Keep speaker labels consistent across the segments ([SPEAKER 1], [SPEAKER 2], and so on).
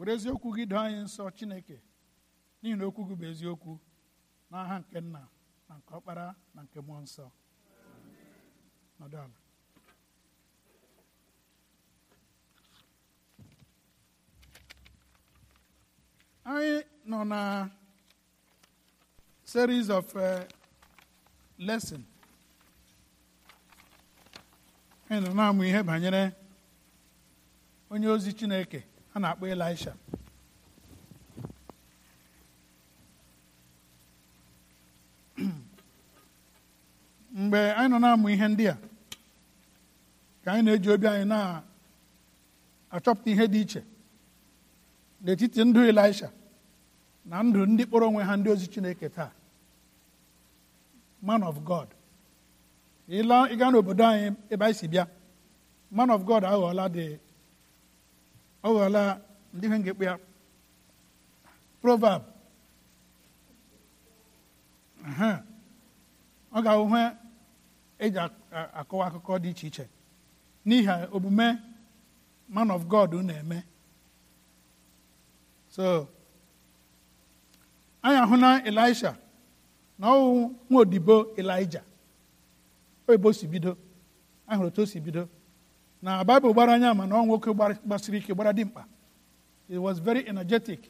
[SPEAKER 1] were eziokwu gị doo anyị nsọ chineke n'ihi na okwu gị bụ eziokwu n'aha nke nna na nke ọkpara na nke mmụọ nsọ nọdụ ala anyị nọ na series of uh, lesson nọ na-amụ ihe banyere onye ozi chineke a na-akpọ Elisha mgbe anyị nọ na-amụ ihe ndị a ka anyị na-eji obi anyị na-achọpụta ihe dị iche n'etiti ndụ Elisha na ndụ ndị kpọrọ onwe ha ndị ozi Chineke taa man of God ịga n'obodo anyị ebe anyị si bịa man of God aghọọla dị ọ ghọọla ndị ihe ngekpe ya proverb ọ ga-ahụ eji akọwa akụkọ dị iche iche n'ihi omume man of God na-eme so anyị ahụ na Elisha na ọwụ nwa odibo elija oyibo si bido ahụrụ otu o si bido na Bible gbara anya ma na ọ nwoke gbasiri ike gbara dimkpa he was very energetic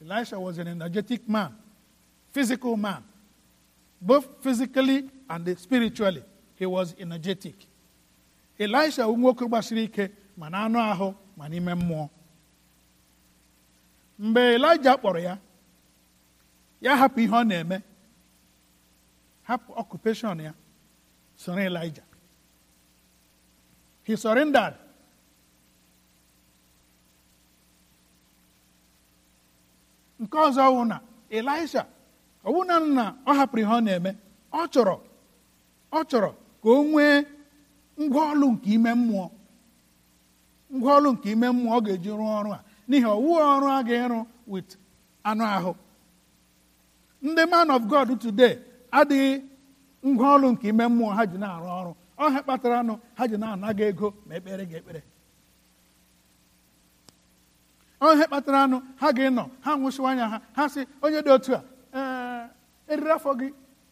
[SPEAKER 1] elisha was an energetic man physical man both physically and spiritually he was energetic elisha nwoke gbasiri ike ma na anụ ahụ ma n'ime mmụọ mgbe elija kpọrọ ya ya hapụ ihe ọ na-eme hapụ occupation ya soro elija He surrendered. nke ọzọ wụ na Elisha ọwụna nna ọ hapụrụ ihe ọ na-eme ọ chọrọ ọ chọrọ ka o nwee ngwaọlụ nke ime mmụọ ngwaọlụ nke ime mmụọ ọ ga-eji rụọ ọrụ a n'ihi ọwụ ọrụ a ga-ịrụ with anụ ahụ ndị man of God today adịghị ngwaọlụ nke ime mmụọ ha ji na-arụ ọrụ ọha kpatara anụ ha ji na-anaga ego ma ekpere gị ekpere ọhe kpatara anụ ha ga-enọ ha nwụsịwa anya ha ha sị onye dị otu a eh, eriri afọ gị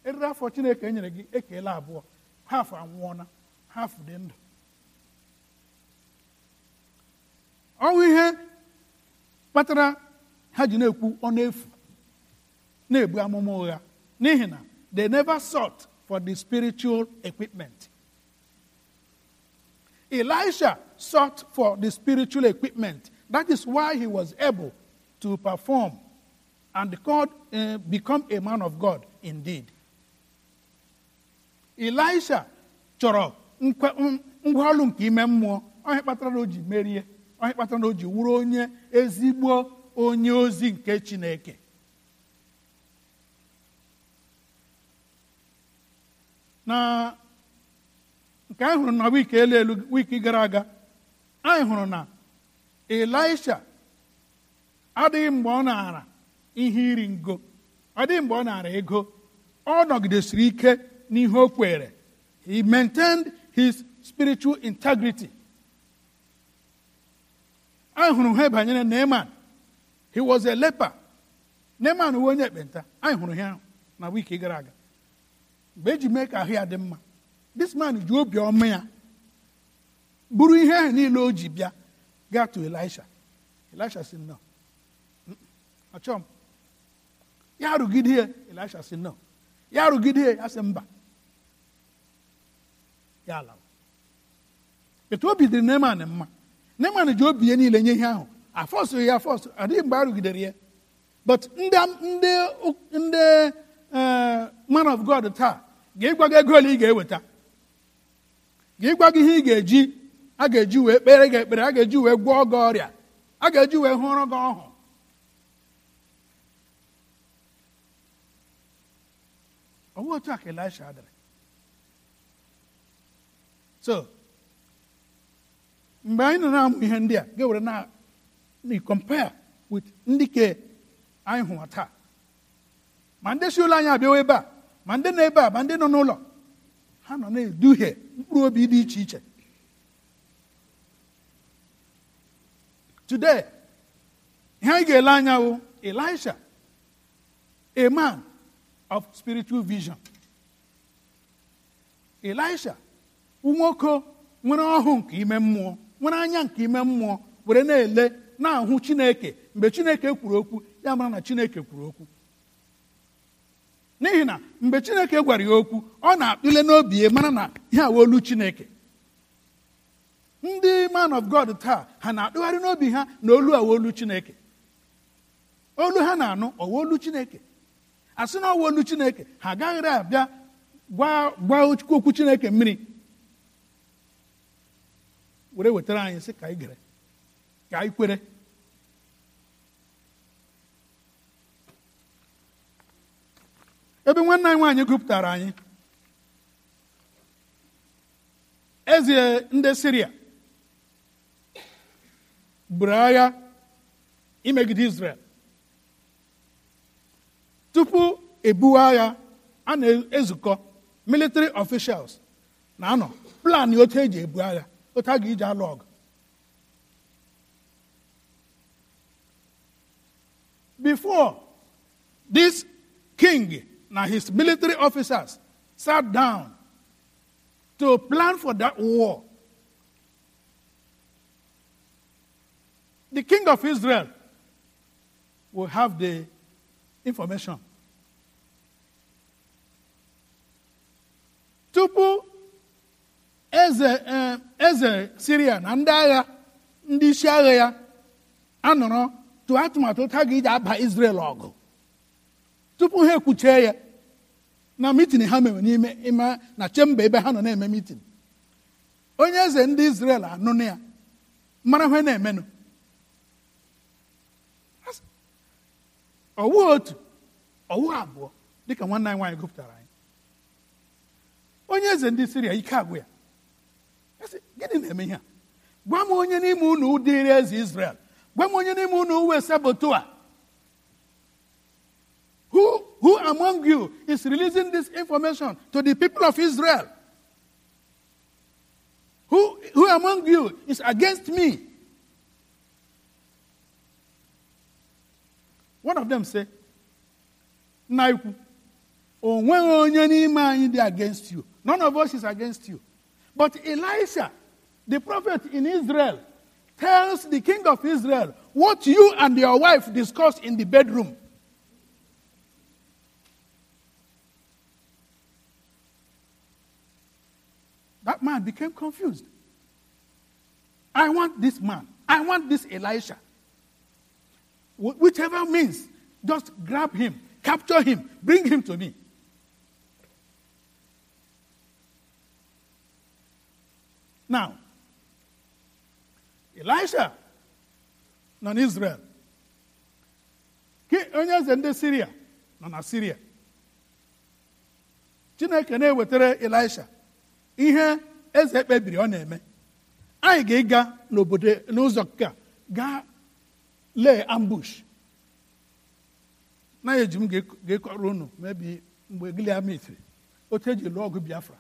[SPEAKER 1] eriri afọ chineke e nyere gị ekele abụọ ha afọ anwụọna ha afọ dị ndụ ọnwụ ihe kpatara ha ji na-ekwu ọnụ efu na-ebu amụma ụgha n'ihi na they never sought for the spiritual equipment Elisha sought for the spiritual equipment. That is why he was able to perform and God, uh, eh, become a man of God indeed. Elisha chọrọ ngwaọrụ nke ime mmụọ onye kpatara na o ji merie onye kpatara na o ji wụrụ onye ezigbo onye ozi nke Chineke na Ka anyị hụrụ na wiki elu elu wiki gara aga anyị hụrụ na elisha adịghị mgbe ọ naara ihe iri ngo ọ dịghị mgbe ọ naara ego ọ nọgidesiri ike n'ihe o kwere he maintained his spiritual integrity anyị hụrụ ha banyere Neman he was a leper Neman uwe onye ekpenta anyị hụrụ ha na wiki gara aga mgbe eji mee ka ahụ ya dị mma this man ji obiọma ya buru ihe ahụ niile o ji bịa gaa to elisha elisha si nọ achọ m ya rụgide ya elisha si nọ ya rụgide ya ya sị mba ya ala etu obi dịrị neman mma neman ji obi ya niile nye ihe ahụ afọsụghị ya afọsụ adịghị mgbe a ya but ndị eh, man of god taa ga-ịgwago ego ole ị ga-eweta gwa gị ihe ị ga-eji a ga-eji wee kpere gị ekpere a ga-eji wee gwọọ gị ọrịa a ga-eji wee hụrụ gị ọhụ ọ bụghị otu a ka Elisha dịrị so mgbe anyị nọ na-amụ ihe ndị a ga-ewere na compare with ndị ke anyị hụwa taa ma ndị si ụlọ anyị abịawa ebe a ma ndị nọ ebe a ma ndị nọ n'ụlọ ha nọ na-eduhie mkpụrụ obi dị iche iche today ihe anyị ga-ele anya bụ Elisha a man of spiritual vision Elisha nwoke nwere ọhụụ nke ime mmụọ nwere anya nke ime mmụọ were na-ele na-ahụ Chineke mgbe Chineke kwuru okwu ya mara na Chineke kwuru okwu n'ihi na mgbe chineke gwara ya okwu ọ na-akpịle n'obi ya mara na ihe olu chineke ndị man of god taa ha na akpịgharị n'obi ha na olu olu chineke olu ha na-anụ olu chineke a sị na olu chineke ha agaghịrị abịa gwa okwu chineke mmiri were wetara anyị sị ka anyị gere ka anyị kwere ebe nwanne anyị nwaanyị gụpụtara anyị eze ndị siria buru agha imegide israel tupu ebuwe agha a na-ezukọ military officials na-anọ plan otu eji ebu agha otu a ga-eji alụ ọgụ before this king Now, his military officers sat down to plan for that war. The king of Israel will have the information. Tupu eze eh, eze Syria na ndị agha ndị isi agha ya anọrọ tụọ atụmatụ Israel ọgụ tupu ha ekwuchee ya na mitin ha mere n'ime ịma na chemba ebe ha nọ na-eme mitin onye eze ndị Izrel anụnụ ya mara ha na-emenụ ọwụ otu ọwụ abụọ dịka nwanne anyị nwaanyị gụpụtara anyị onye eze ndị Siria ike agwụ ya gịnị na-eme ihe a gwa m onye n'ime unu dịrị eze Izrel gwa m onye n'ime unu uwe sabotu a Who, who among you is releasing this information to the people of Israel? Who, who among you is against me? One of them said, Naiku, only against you. None of us is against you. But Elisha, the prophet in Israel, tells the king of Israel what you and your wife discussed in the bedroom. That man became confused. I want this man. I want this Elisha. Whichever means, just grab him, capture him, bring him to me. Now, Elisha, non Israel. Onye eze ndị Siria Syria, non Siria. Chineke na-ewetara Elisha ihe eze kpebiri ọ na-eme anyị ga-ịga n'obodo n'ụzọ gaa gaa lee ambush na eji m ga-ekọrọ unu mebi mgbe Giliamit otu eji lụọ ọgụ Biafra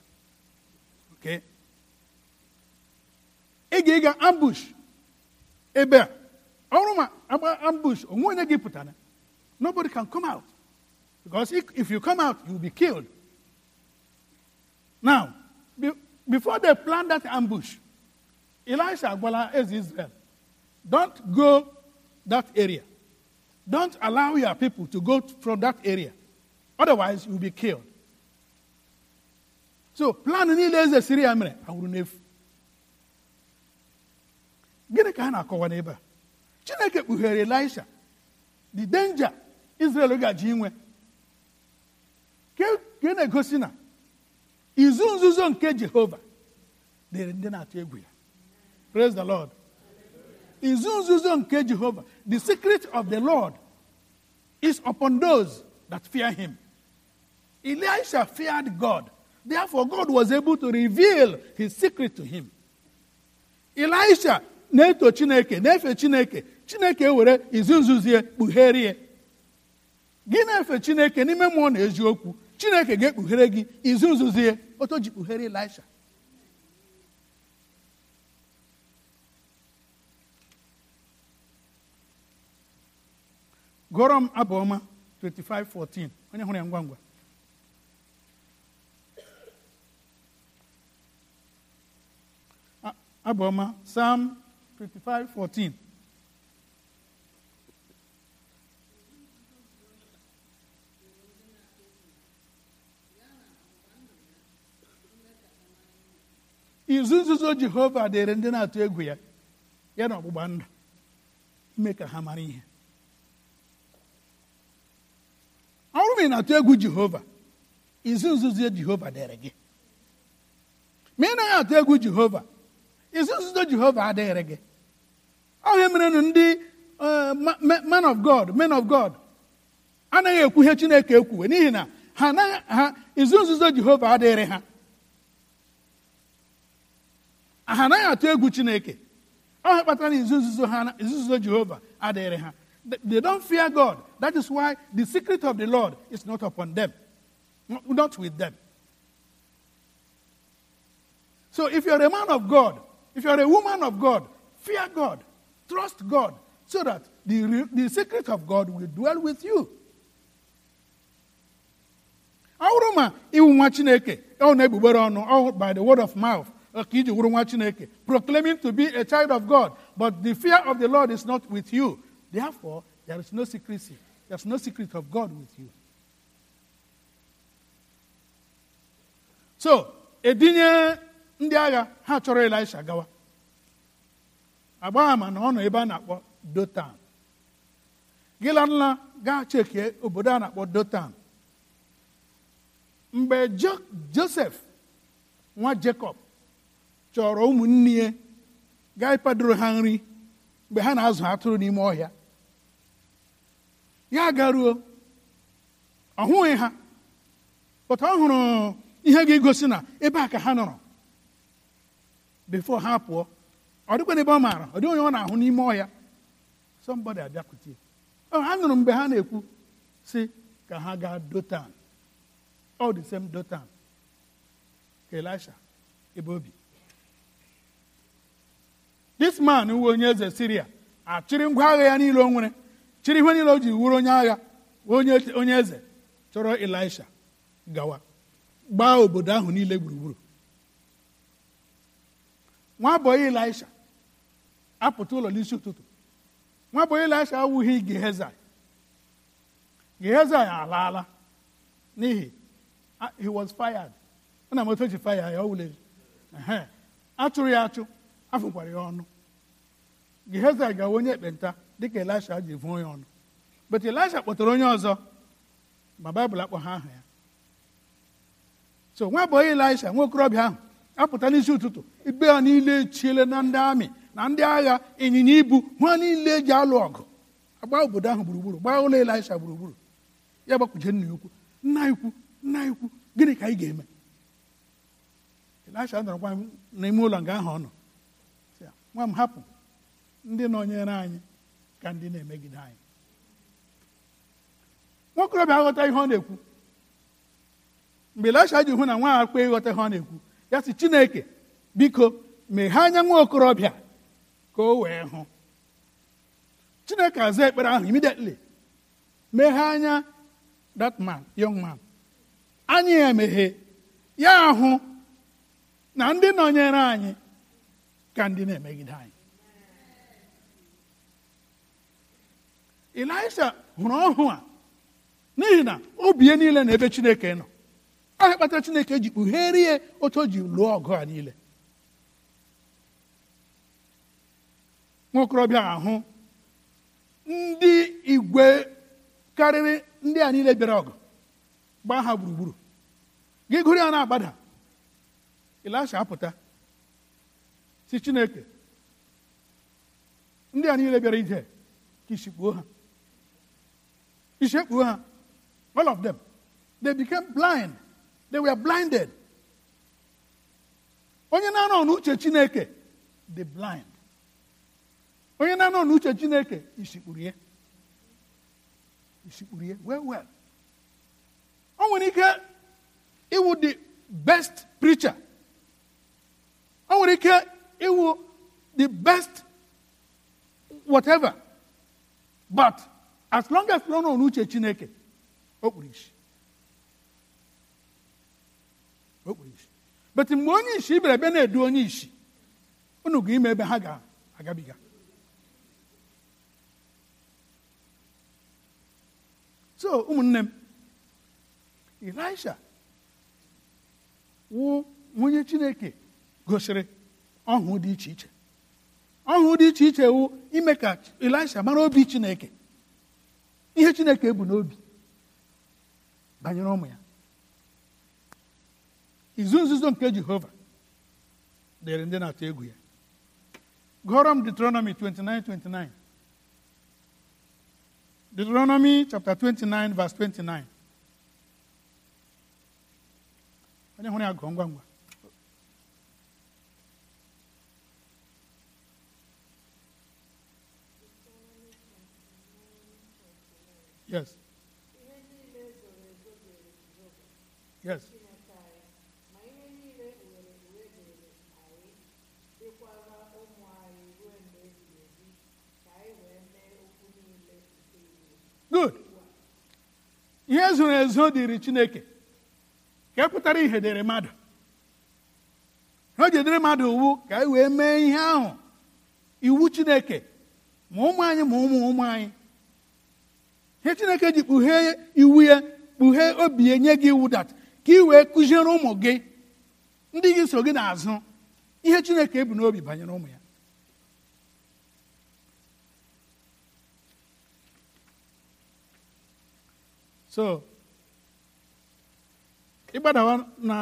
[SPEAKER 1] ị ga-ịga ambush ebe a ọrụ ma agba ambush onwe onye gị pụtara nobody can come out because if you come out you will be killed now Be, before they plan that ambush, Elisha Agbola is Israel. Don't go that area. Don't allow your people to go from that area. Otherwise, you'll be killed. So, plan ni eze siri ya mere awụrụ n'efu. Gịnị ka ha na-akọwa Chineke kpughere Elisha the danger Israel ga-ji inwe. Ka na-egosi na egosi izu nzuzo nke jehova dịrị ndị na-atụ egwu ya praise the lord izu nzuzo nke jehova the secret of the lord is upon those that fear him elisha feared god therefore god was able to reveal his secret to him elisha na-eto chineke na-efe chineke chineke were izu nzuzie kpugherie gị na-efe chineke n'ime mmụọ na eziokwu chineke ga-ekpughere gị izu nzuzie o tó jìkùhẹ́rẹ́ Elisha. gụọrọ m abụ 25:14 onye hụrụ ya ngwa ngwa abụ Psalm 25:14 izu nzuzo jehova dịrị ndị na-atụ egwu ya ya na ọgbụgba ndụ ime ka ha mara ihe ọ ma ị na-atụ egwu jehova izu nzuzo jehova dịrị gị ma ị naghị atụ egwu jehova izu nzuzo jehova adịghịrị gị ọhịa merenụ ndị e, man of god men of god anaghị ekwu ihe chineke ekwuwe n'ihi na ha izu nzuzo jehova adịghịrị ha ha anaghị atụ egwu chineke ọ kpatara na izu nzuzo ha izu nzuzo jehova adịghịrị ha they don't fear god that is why the secret of the lord is not upon them not with them so if you're a man of god if you're a woman of god fear god trust god so that the, the secret of god will dwell with you ọ bụrụ ma iwu nwa chineke ọ na-egbugbere ọnụ by the word of mouth proclaiming to be a child of God but the fear of the Lord is not with you therefore there is no secrecy there is no secret of God with you so edinye ndị agha ha chọrọ Elisha gawa agba ama na ọ ebe a na-akpọ Dotan Gilanla gaa chekie obodo a na-akpọ Dotan mgbe Joseph nwa Jacob chọrọ ụmụnne ya gaa ịkwadoro ha nri mgbe ha na-azụ atụrụ n'ime ọhịa ya garuo ọ hụghị ha pụta ọ hụrụ ihe ga-egosi na ebe a ka ha nọrọ before ha pụọ ọ dịkwana ebe ọ maara ọ dịghị onye ọ na-ahụ n'ime ọhịa somebody abịakwute ha nụrụ mgbe ha na-ekwu sị ka ha gaa dotan ọ the same dotan ka elisha ebe obi this man uwe onye eze siria achịrị ngwa agha ya niile o nwere chịrị ihe niile o ji wuru onye agha onye eze chọrọ elisha gawa gbaa obodo ahụ niile gburugburu nwabọyị elisha apụta ụlọ n'isi ụtụtụ nwabọyị elisha awụghị gehezai gehezai alaala n'ihi he was fired ọ na-amata fire ya ọ ya achụ afụkwara ya ọnụ Gehazi gawa onye ekpenta dịka Elisha ji vụọ ya ọnụ but Elisha kpọtara onye ọzọ ma baịbụl ha aha ya so nwa onye Elisha nwa okorobịa ahụ apụta n'isi ụtụtụ ibe ha niile echiele na ndị amị na ndị agha ịnyịnya ibu ha niile eji alụ ọgụ agba obodo ahụ gburugburu gbaa ụlọ Elisha gburugburu ya gbakwuje nna ikwu nna ikwu nna ikwu gịnị ka anyị ga-eme Elisha nọrọkwa n'ime ụlọ nga ahụ ọ nọ nwa m hapụ ndị nọnyere anyị ka ndị na-emegide anyị nwokorobịa aghọta ihe ọ na-ekwu mgbe Elisha ji hụ na nwa akpa ịghọta ihe ọ na-ekwu ya sị Chineke biko meghee anya nwa okorobịa ka o wee hụ Chineke aza ekpere ahụ immediately meghee anya that man young man anya ya emeghe ya ahụ na ndị nọnyere anyị ka ndị na-emegide anyị. Ịlaịsha hụrụ ọhụụ a n'ihi na bie niile na ebe Chineke nọ ahịa kpatara Chineke ji ya otu o ji lụọ ọgụ a niile Nwokorobịa ahụ ndị igwe karịrị ndị a niile bịara ọgụ gbaa ha gburugburu gị gụrụ ya na-agbada apụta si Chineke ndị a niile bịara ije ka isi ha isi ha all of them they became blind they were blinded onye na-anọ n'uche Chineke dị blind onye na-anọ n'uche Chineke isikpuru ya isikpuru ya well well o nwere ike ịwụ the best preacher o nwere ike it will the best whatever. But as long as no one uche chineke, okpurishi. okpurishi. But in onye ishi ibere ebe na-edu onye ishi, unu ga agabiga So, ụmụnne m, Elisha wụ onye Chineke gosiri Ang dị iche iche ọhụụ dị iche iche wụ ime ka Elisha mara obi Chineke ihe Chineke bụ n'obi banyere ụmụ ya izu nzuzo nke Jehova dịrị ndị na-atụ egwu ya gụọrọ m Deuteronomy 29:29 Deuteronomy chapter 29 verse 29 onye hụrụ ya gụọ ngwa ngwa Yes. Yes. Good. Ihe zoro ezo dịrị Chineke ka e pụtara ihe dịrị mmadụ o jedere mmadụ iwu ka anyị wee mee Chineke ma ụmụ anyị ihe chineke ji kpughee iwu ya kpughee obi ya nye gị iwu dat ka ị wee kụziere ụmụ gị ndị gị so gị n'azụ ihe chineke ebu n'obi banyere ụmụ ya so ịgbadawa na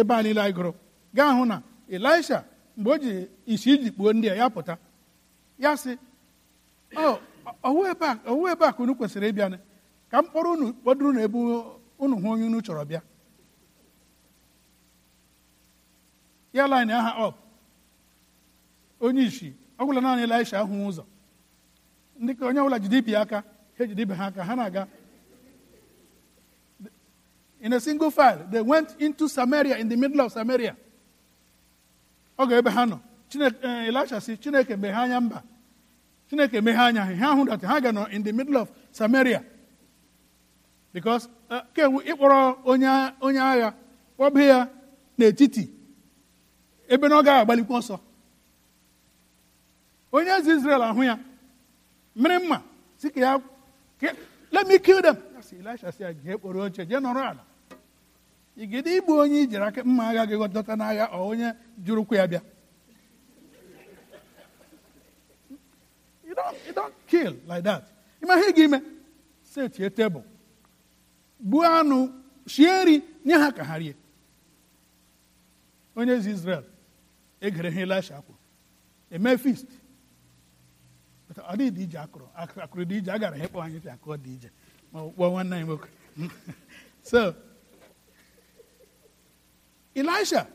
[SPEAKER 1] ebe a niile gụrụ gaa hụ na elisha mgbe o ji isi iji kpuo ndị a ya pụta ya sị ọ oh, owu ebe a owu ebe a ka unu kwesịrị ịbịa ka m kpọrọ unu kpọdụrụ na ebe unu hụ onye unu chọrọ bịa ya line aha ọp onye isi ọ naanị Elisha ahụ ụzọ ndị ka onye ọbụla jide ibi aka ha ejide ibe ha aka ha na-aga in a single file they went into Samaria in the middle of Samaria ọ ga ebe ha nọ eh, Chineke Elisha si Chineke mgbe ha anya mba chineke meghe anya ha ha hụ ha ga nọ in the middle of samaria because uh, kewu ịkpọrọ onye agha kpọba ya n'etiti ebe na ọ gaghị agbalikwa ọsọ onye eze israel ahụ ya mmiri mma si ka ya let me kill them elisha si ya jee kpọrọ oche jee nọrọ ala igide igbu onye ijiri aka mma agha gị dọta n'agha ọ onye jụrụ ụkwụ ya bịa don't, you don't kill like that. Imagine set your table. Gbuo anụ, shie nri, nye ha ka ha Onye ezi Izrel egere ha Elisha akwụ. Eme feast. Ọ dị ije akụrụ. Akụrụ dị ije, agara gara anyị ka akụrụ dị ije. Ma ọ kpọọ nwanne anyị nwoke. So, Elisha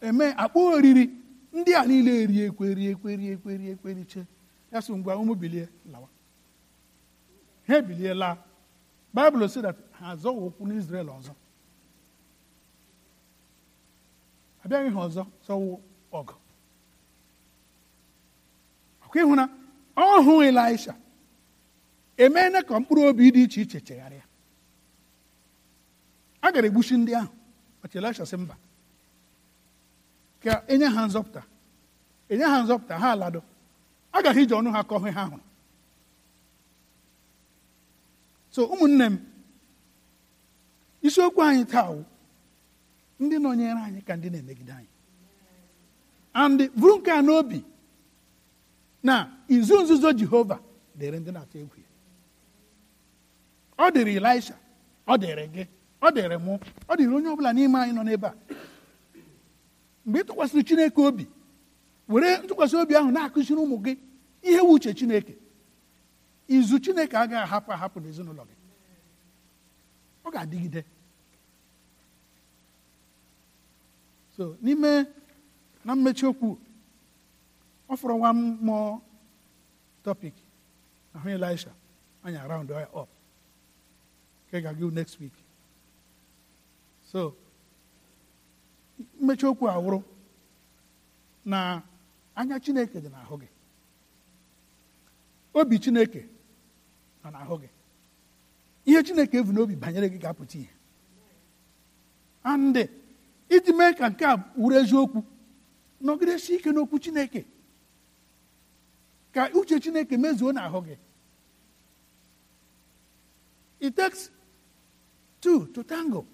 [SPEAKER 1] eme akpọ oriri ndị a niile eriekwe eriekwe eriekwe eriekwe riche. ya sị ngwa ụmụ bilie lawa ha ebiliela baịbụl si that ha azọghị ụkwụ n'izrel ọzọ abịaghị ha ọzọ sọwụ ọgụ ọkụ ịhụ na ọ hụ elisha emeela ka mkpụrụ obi dị iche iche chegharịa a gara egbuchi ndị ahụ ọchị elisha sị mba ka enye ha nzọpụta enye ha nzọpụta ha agaghị iji ọnụ ha kọọ ha hụrụ so ụmụnne m isiokwu anyị taa wụ ndị nọnyere anyị ka ndị na-emegide anyị and bụrụ nke a n'obi na izu nzuzo jehova dịrị ndị na-atụ egwu ya ọ dịrị elisha ọ dịrị gị ọ dịrị mụ ọ dịrị onye ọbụla n'ime anyị nọ n'ebe a mgbe ị tụkwasịrị chineke obi were ntụkwasị obi ahụ na-akụziri ụmụ gị ihe wu uche chineke izu chineke agaghị ahapụ ahapụ n'ezinụlọ gị ọ ga-adịgide so n'ime na mmechi okwu ọ fọrọ nwa mmụọ topic ahụ elisha anyị around ya up nke ga-agụ next week so mmechi okwu awụrụ na anya chineke dị n'ahụ gị obi chineke nọ n'ahụ gị ihe chineke evu n'obi banyere gị ga-apụta ihe andị iji mee ka nke a wuru eziokwu nọgidesi ike n'okwu chineke ka uche chineke mezuo n'ahụ gị it takes two to tango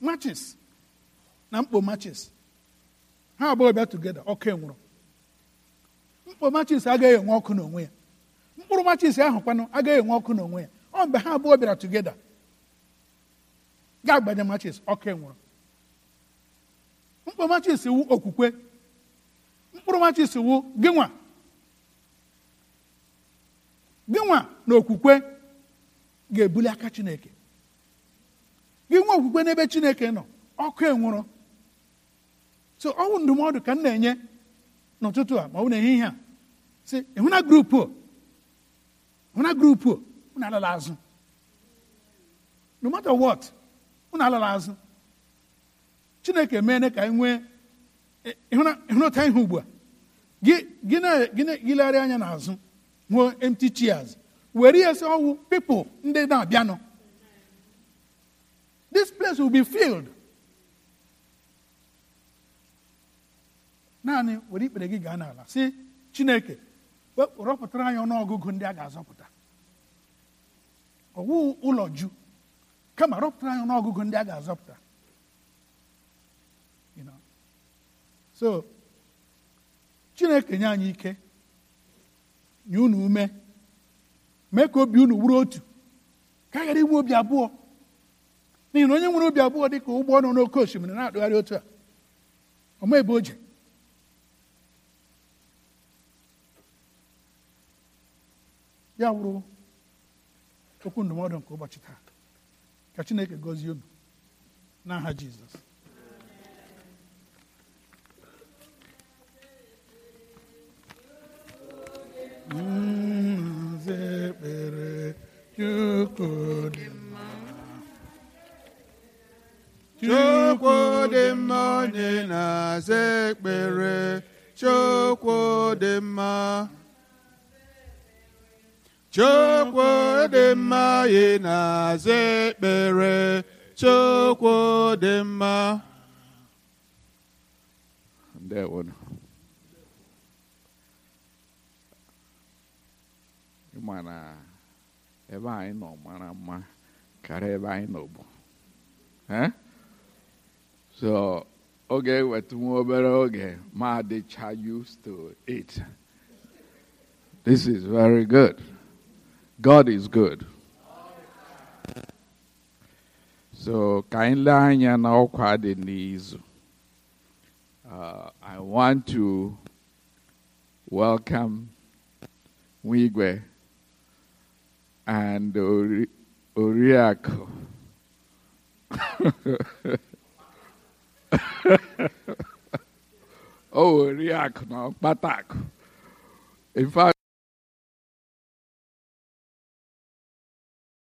[SPEAKER 1] matches na mkpo matches ha abụọ bịa tugeda ọkụ nwụrụ. mkpụrụ machis agaghị enwe ọkụ n'onwe ya mkpụrụ machis ahụ kwanụ agaghị enwe ọkụ n'onwe ya ọ mgbe ha abụọ bịara tugeda ga-agbanye machis ọkụ nwụrụ. mkpụrụ machis wu okwukwe mkpụrụ machis wu gịnwa gịnwa na okwukwe ga-ebuli aka chineke gịnwa okwukwe n'ebe chineke nọ ọkụ enwụrụ so ọ bụ ndụmọdụ ka m na-enye n'ụtụtụ a ma ọ bụ ihe a si hụna grupu hụna grupu unu alala azụ no matter what unu alala azụ chineke meene ka anyị nwee ịhụnata ihe ugbu a gị anya n'azụ nwee empty chairs were ya sị ọwụ people ndị na-abịanụ this place will be filled naanị were ikpere gị gaa n'ala sị chineke rọpụtara anyị ọnụọgụgụ ndị a ga-azọpụta ọwụ ụlọ ju kama rọpụtara anyị ọnụọgụgụ ndị a ga-azọpụta so chineke nye anyị ike nye unu ume mee ka obi unu wuru otu ka a ghara inwe obi abụọ n'ihi na onye nwere obi abụọ dị ka ụgbọ nọ n'oke osimiri na-atụgharị otu a o ma o je ya wụrụ okwu ndụmọdụ nke ụbọchị taa ka chineke gọzie obi n'aha jizọs chukwu dị mma onye na-aza ekpere chukwu dị mma Chukwu dị mma ị na-aza ekpere Chukwu dị mma. That one. Ị ma na ebe anyị nọ mara mma karịa ebe anyị nọ bụ. So oge weta nwa obere oge ma dịcha used to it. This is very good. God is good. So, ka anyị lee anya n'ọkwa uh, I want to welcome Mwigwe and Ori- oh, Oriako, no, Patako. In fact,